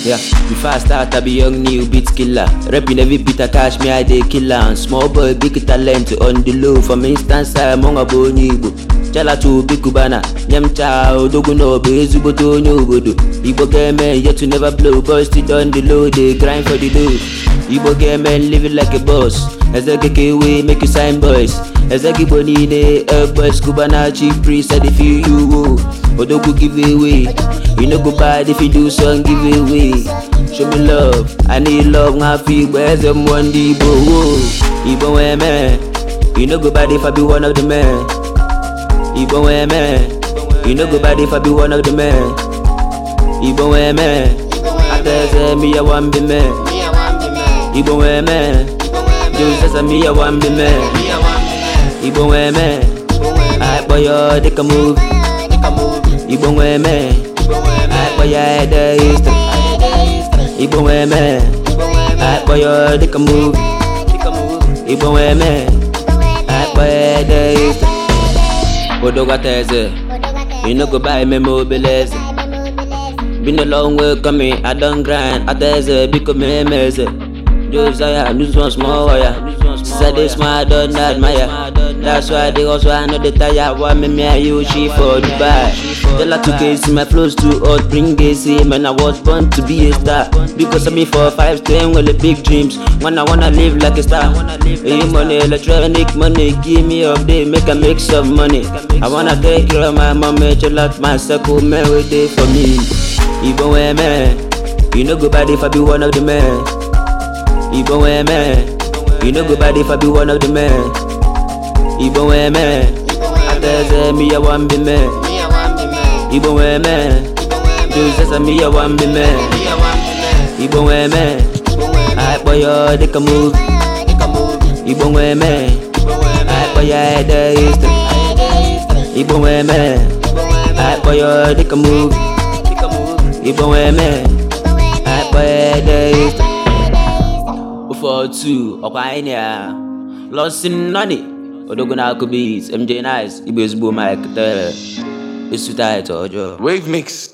Yeah, before I start, I be young new beat killer. Rapping every beat I catch me, I dey killer. am small boy, big talent on the low. From instance, I'm on a onye book. chalacha obi kubana nye m chaa odogwu na ọbụ ezigbote onye obodo igbo ga-eme yet to never blow boys still don the low dey grind for the low igbo ga-eme living like a boss eze gị ka make you sign boys eze gị niile eh, boys kubana chi priest i dey feel you o odogwu give away you no go bad if you do song give away show me love i need love nwa afọ igbo eze mmụọ ndị igbo wo igbo nwee mee you no go if i be one of the men Igbo wee mere You no go bad if I be one of the men Igbo wee mere Aka eze mi ya wan bi me Igbo wee mere Josesa mi ya wan bi me Igbo wee mere Akpọ ya dịka movie Igbo e mere Akpọ ya ede history Igbo wee mere Akpọ ya dịka movie Igbo wee mere Akpọ ya odogata eze you no go buy memo obele eze been a long way coming i don grind ata eze biko mee eze i lose one small wire. Said this man don't admire. That's why they also I know tire. Why me for Dubai? Tell her to case my flows too hot, bring AC. Man, I was born to be a star. Because me for five ten with the big dreams. When wanna live like a star. You money, electronic money, give me up day, make a make some money. I wanna take care of my mommy, chill out my circle, man, for me. Even when man, you know bad if I be one Igbo wee mere You no go bad if I be one of the men eze wan bi me Igbo wee wan bi me Igbo wee dịka move Igbo wee mere ede history Igbo wee mere Akpọ dịka move Igbo wee mere Akpọ ede history 142 ọkwa anyị na Lọsin Nọni Odogun na MJ Nice Igbo ezigbo Mike Tere esu taịtụ ọjọọ Wave Mix